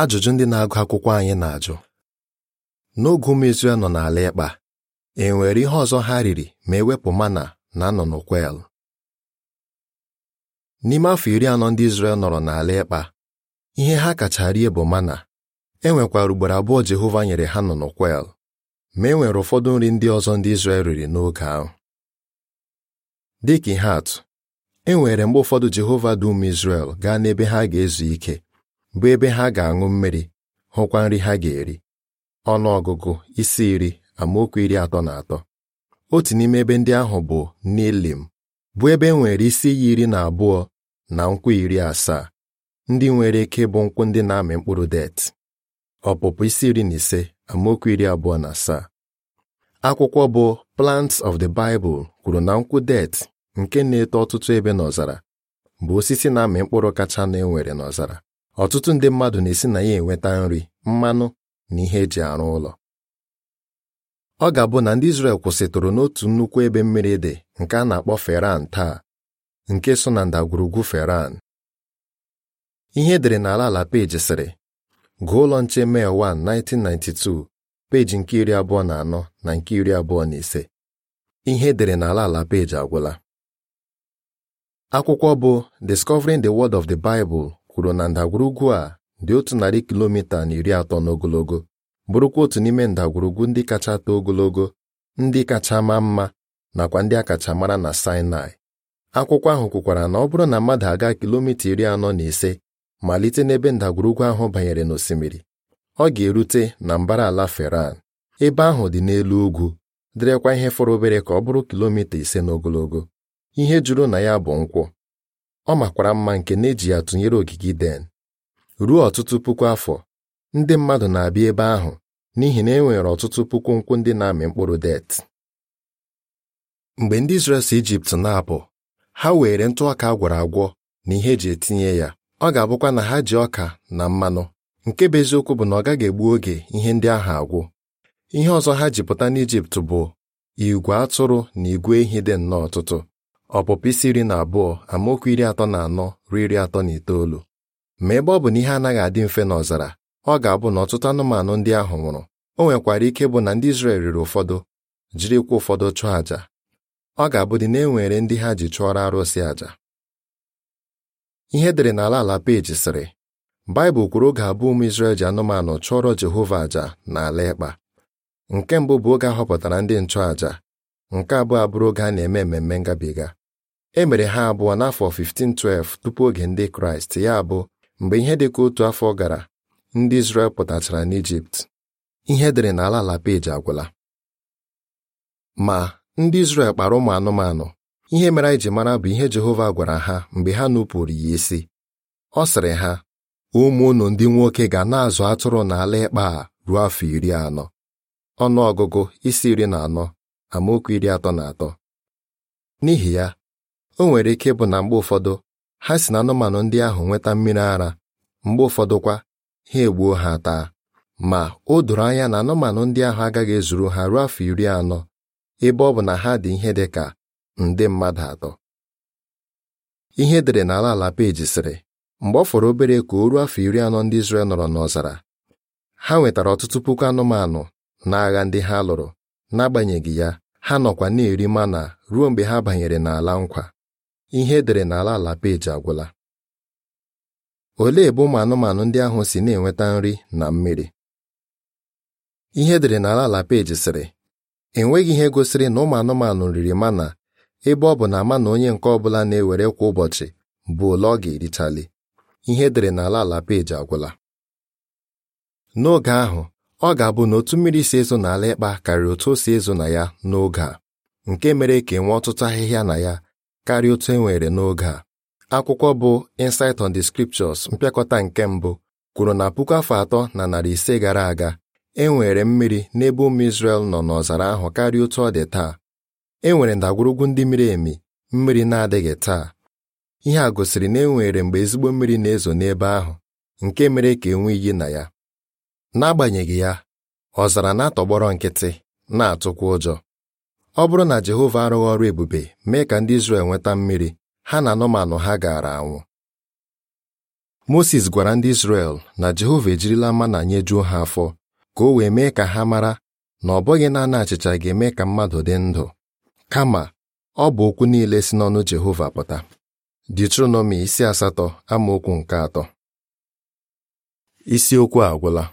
ajụjụ ndị na-agụ akwụkwọ anyị na-ajụ n'oge ụmụ Izrel nọ n'ala ịkpa e nwere ihe ọzọ ha riri ma ewepụ mana na nnụnụ kwel n'ime afọ iri anọ ndị Izrel nọrọ n'ala ịkpa ihe ha kacha rie bụ mana e nwekwara ugboro abụọ Jehova nyere ha nnụnụ kwel ma e nwere ụfọdụ nri ndị ọzọ ndị Izrel riri n'oge ahụ dịka ihe atụ e nwere mgbe ụfọdụ Jehova dị ume Izrel gaa n'ebe ha ga-ezu ike bụ ebe ha ga-aṅụ mmiri hụkwa nri ha ga-eri ọnụ ọgụgụ isi iri amaokwu iri atọ na atọ otu n'ime ebe ndị ahụ bụ Nilim bụ ebe e nwere isi iyi iri na abụọ na nkwụ iri asaa ndị nwere ike bụ nkwụ ndị na-amị mkpụrụ det ọpụpụ isi iri na ise amaokwu iri abụọ na asaa akwụkwọ bụ Plants of the Bible kwuru na nkwụ det nke na-eto ọtụtụ ebe n'ọzara bụ osisi na-amị mkpụrụ kacha na enwere n'ọzara ọtụtụ ndị mmadụ na-esi na ya enweta nri mmanụ na ihe eji arụ ụlọ ọ ga-abụ na ndị Izrel kwụsịtụrụ n'otu nnukwu ebe mmiri dị nke a na-akpọ Feran taa nke so na ndagwurugwu Feran ihe edere n'ala ala peji sịrị gụọ ụlọ nche Mee 1 1992 peji nke iri abụọ na anọ na nke iri abụọ na ise ihe edere n'ala ala peji agwụla akwụkwọ bụ Discovering the Word of the Bible kwuru na ndagwurugwu a dị otu narị kilomita na iri atọ n'ogologo bụrụkwa otu n'ime ndagwurugwu ndị kacha too ogologo ndị kacha maa mma nakwa ndị akacha mara na Sinai akwụkwọ ahụ kwukwara na ọ bụrụ na mmadụ aga kilomita iri anọ na ise malite n'ebe ndagwurugwu ahụ banyere n'osimiri ọ ga-erute na mbara ala Feran ebe ahụ dị n'elu ugwu dịrịkwa ihe fọrọ obere ka ọ bụrụ kilomita ise n'ogologo ihe juru na ya bụ nkwụ ọ makwara mma nke na-eji ya tụnyere ogige den ruo ọtụtụ puku afọ ndị mmadụ na-abịa ebe ahụ n'ihi na e nwere ọtụtụ puku nkwụ ndị na-amị mkpụrụ det mgbe ndị Izrel si Ijipt na-apụ ha were ntụ ọka a agwọ na ihe eji etinye ya ọ ga-abụkwa na ha ji ọka na mmanụ nke bụ eziokwu bụ na ọ gaghị egbu oge ihe ndị ahụ agwụ ihe ọzọ ha ji pụta n'Ijipt bụ igwe atụrụ na igwe ehi dị nnọọ ọtụtụ ọpụpụ isi iri na abụọ amaokwu iri atọ na anọ ruo iri atọ na itoolu ma ebe ọ bụ na ihe anaghị adị mfe n'ọzara ọ ga-abụ na ọtụtụ anụmanụ ndị ahụ nwụrụ o nwekwara ike bụ na ndị Izrel riri ụfọdụ jirikwa ụfọdụ chụọ àja ọ ga-abụdị na e nwere ndị ha ji chụọrọ arụsị àja ihe edere n'ala ala peji sịrị Baịbụl kwuru oge abụọ ụmụ Izrel ji anụmanụ chụọrọ Jehova na n'ala ịkpa nke mbụ bụ oge a họpụtara ndị nchụàja nke abụọ abụrụ oge a na-eme mmemme ngabiga e mere ha abụọ n'afọ 1512 tupu oge ndị kraịst ya bụ mgbe ihe dịka otu afọ gara ndị Izrel pụtachara n'Ijipt ihe dịrị n'ala ala peji agwụla ma ndị Izrel kpara ụmụ anụmanụ ihe mere anyị ji mara bụ ihe Jehova gwara ha mgbe ha nupụrụ ya isi ọ sịrị ha ụmụ unu ndị nwoke ga na-azụ atụrụ n'ala ịkpa a ruo afọ iri anọ ọnụ ọgụgụ isi iri na anọ amaokwu iri atọ na atọ n'ihi ya o nwere ike bụ na mgbe ụfọdụ ha si na anụmanụ ndị ahụ nweta mmiri ara mgbe ụfọdụkwa ha egbuo ha taa ma o doro anya na anụmanụ ndị ahụ agaghị ezuru ha ruo afọ iri anọ ebe ọ bụ na ha dị ihe dị ka nde mmadụ atọ ihe e dere n'ala ala peji sịrị mgbe ọ fọrọ obere ka o ruo afọ iri anọ ndị Izrel nọrọ n'ọzara ha nwetara ọtụtụ puku anụmanụ n'agha ndị ha lụrụ n'agbanyeghị ya ha nọkwa na-eri mana ruo mgbe ha banyere n'ala nkwa ihe edere n'ala ala peji agwụla olee ebe ụmụ anụmanụ ndị ahụ si na-enweta nri na mmiri ihe edere n'ala ala peji sịrị enweghị ihe gosiri na ụmụ anụmanụ riri mana ebe ọ bụ na ama na onye nke ọ bụla na-ewere kwa ụbọchị bụ ole ọ ga-erichali ihe edere n'ala ala peji agwụla n'oge ahụ ọ ga-abụ na otu mmiri si ezo n'ala ịkpa karịrị otu o si ezo na ya n'oge a nke mere ka enwee ọtụtụ ahịhịa na ya karịa otu e nwere n'oge a akwụkwọ bụ Insight on the Scriptures mpịakọta nke mbụ kwuru na puku afọ atọ na narị ise gara aga e nwere mmiri n'ebe ụmụ Izrel nọ n'ọzara ahụ karịa otu ọ dị taa e nwere ndagwurugwu ndị miri emi mmiri na-adịghị taa ihe a gosiri na e nwere mgbe ezigbo mmiri na-ezo n'ebe ahụ nke mere ka enwe iyi na ya n'agbanyeghị ya ọzara na-atọgbọrọ nkịtị na-atụkwa ụjọ ọ bụrụ na Jehova arụghị ọrụ ebube mee ka ndị Izrel nweta mmiri ha na anụmanụ ha gaara anwụ Moses gwara ndị Izrel na Jehova ejirila mma mana nyejuo ha afọ ka o wee mee ka ha mara na ọ bụghị naanị achịcha ga-eme ka mmadụ dị ndụ kama ọ bụ okwu niile si n'ọnụ Jehova pụta detronomi isi asatọ amaokwu nke atọ isiokwu agwụla